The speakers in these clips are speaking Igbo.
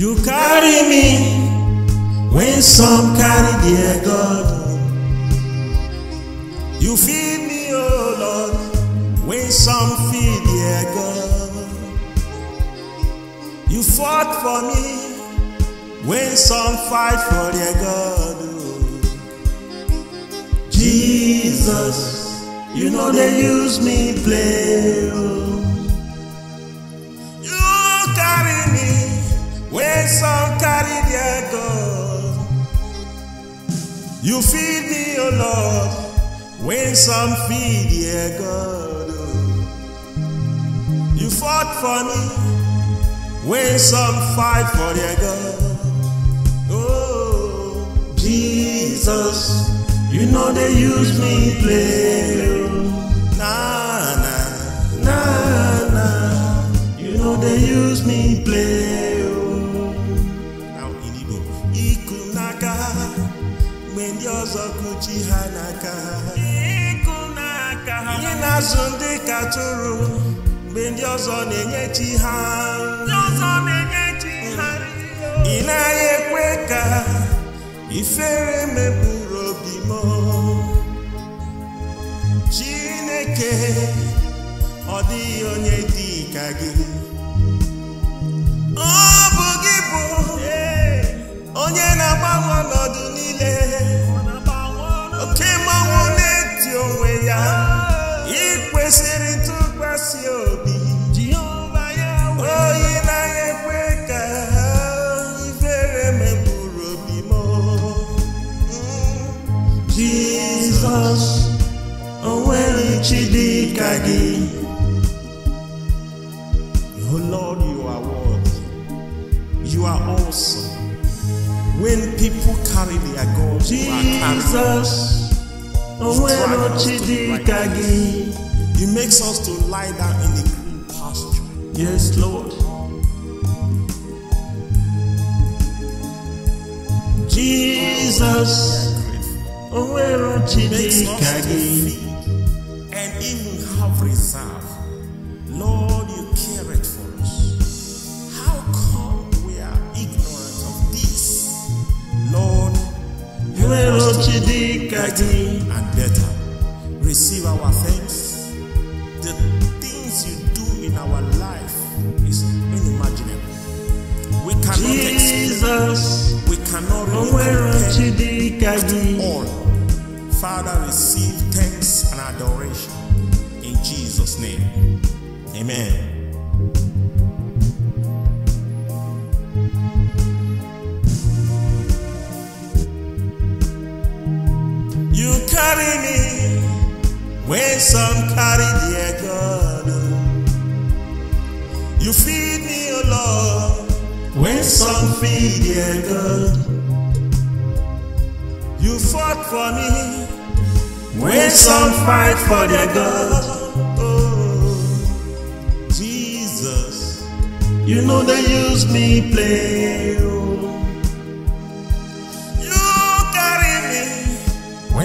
You carry me when some carry their God. You feed me, oh Lord, when some feed their God. You fought for me when some fight for their God. Oh. Jesus, you know they use me play. Oh. some carry their God. You feed me, O oh Lord, when some feed their God. You fought for me when some fight for their God. Oh, Jesus, you know they use me play. Nah, nah, nah, nah. You know they use me play. ha n'aka ha ihe na-azụ ndị tụrụ mgbe ndị ọzọ na-enye chi ha ị naghị ekwe ka ifere mepụrụ obi m Chineke ọ dịghị onye dị ka gị ọ bụ gị bụ onye na-agbanwe ọnọdụ Lord, you are worthy. You are awesome. When people carry their gods, Jesus, you are carrying us. He makes us to lie down in the green pasture. Yes, Lord. Jesus, Owero again, and even have reserve, Lord. integrity, and better. Receive our thanks. The things you do in our life is unimaginable. We cannot Jesus, explain. We cannot comprehend all. Father, receive thanks and adoration in Jesus' name. Amen. carry me when some carry their God. You feed me, O oh Lord, when some feed their God. You fought for me when some fight for their God. Oh, Jesus, you know they use me play.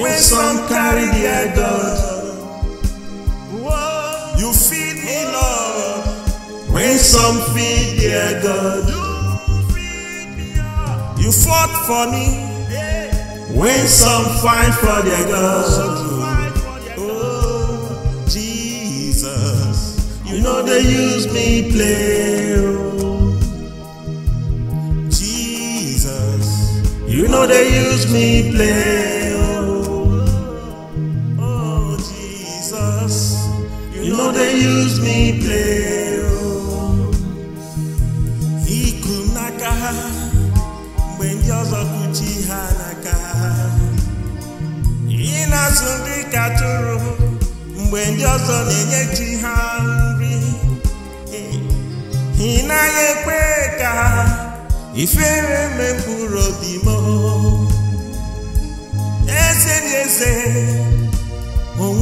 When some carry their God, you feed me, Lord. When some feed their God, you fought for me. When some fight for their God, oh Jesus, you know they use me play. Jesus, You know they use me play. they use me play o iku n'aka ha mgbe ndị ọzọ kwuchi ha n'aka ha ị na-azụ ndị katụrụ mgbe ndị ọzọ na-enye chi ha nri ị naghị ekwe ka ifere mekpụrụ obi m eze na eze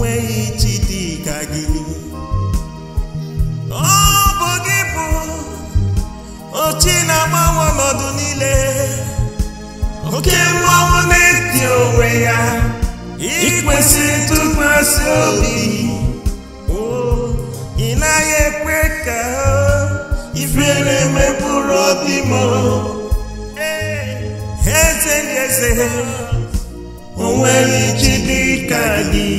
onweghị chi dị ka gị ọ bụ gị bụ ochi na-agbanwe ọnọdụ niile oke mmanwụ na-eti onwe ya ikwesị ntụkwasị obi ị naghị ekwe ka ifere mepụrụ obi m eze na eze onweghị chi dị ka gị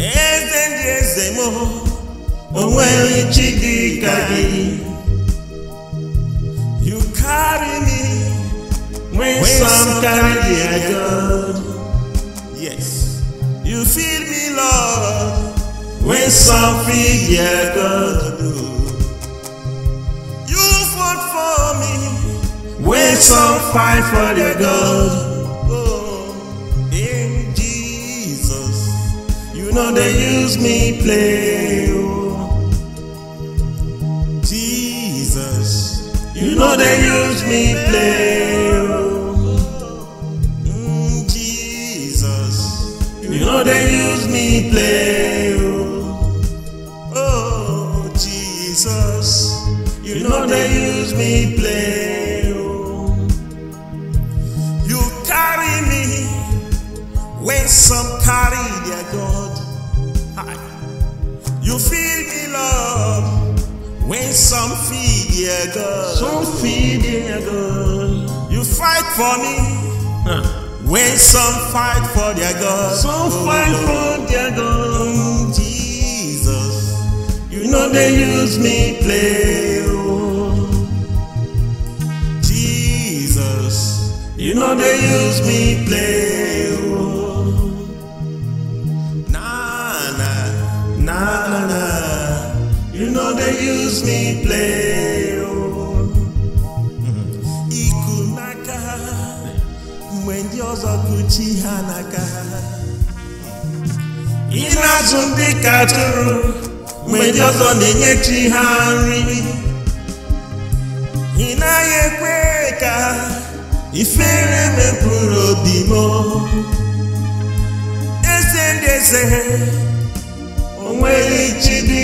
eze ndị eze m onweghị chi dị ka gị you carry me when some carry the idol yes you feel me lord when some feel the god you fought for me when some fight for the god. no they use me play oh jesus you know they use me play oh mm, jesus you know they use me play oh oh jesus you know they use me play oh you carry me when some carry their gun. Some feed their girl. Some feed their girl. You fight for me. Huh. When some fight for their God. Some oh, fight for their God. Jesus, you, you know they use me play. Oh. Jesus, you know they use me play. Oh. gives me play oh. iku n'aka mgbe ndị ọzọ kụchi ha n'aka ha ị na-azụ ndị ka atụrụ mgbe ndị ọzọ na-enye chi ha nri ị naghị ekwe ka ifere mepụrụ obi m eze ndị eze onweghị chi dị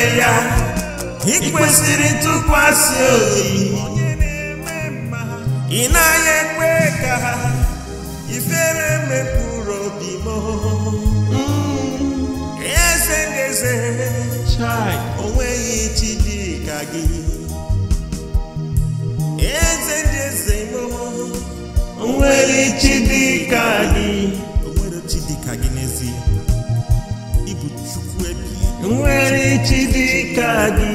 n'ime ya ị kwesịrị ntụkwasị obi ị naghị ekwe ka ha ifere mepụrụ obi m eze na eze chi dị ka gị nwere chi dị ka gị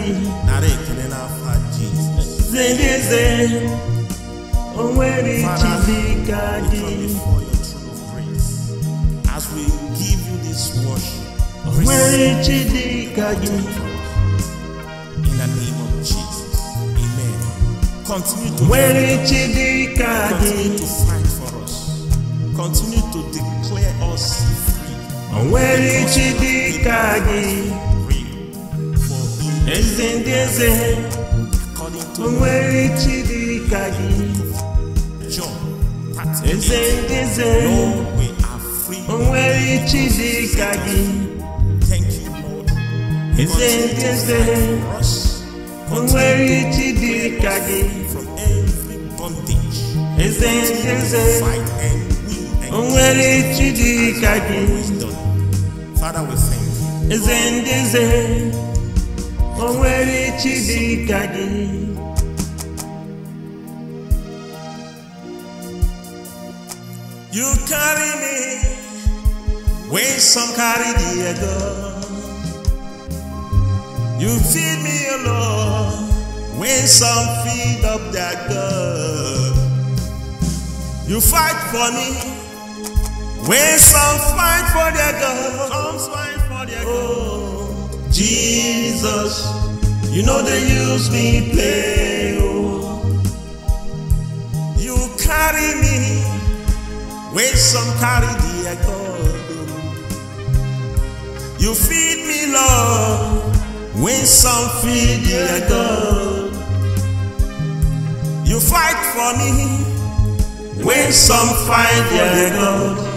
nara ekele n'afọ jizọs As we give you this worship, onwere chi in the name of Jesus, Amen. Continue to onwere chi Continue to fight for us. Continue to declare us. Onwere dịka gị eze ndị eze onwere chi dịka gị eze ndị eze onwere chi dịka gị eze ndị eze onwere chi dịka gị eze ndị eze onwere chi dịka gị Father, we thank you. Zendize, onwere chidika gị. You carry me when some carry the other. You feed me, alone when some feed up their girl. You fight for me when some fight for their God, some fight for their oh, God. Jesus, you know they use me play. Oh. You carry me when some carry their God. You feed me love when some feed their God. You fight for me when some fight for their God.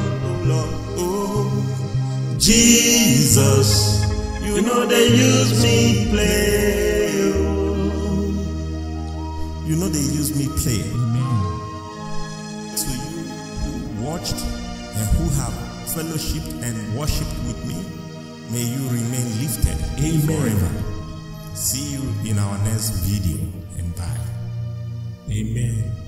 Jesus, you know they use me play. Oh. You know they use me play. Amen. To you who watched and who have fellowshipped and worshipped with me, may you remain lifted Amen. forever. See you in our next video and bye. Amen.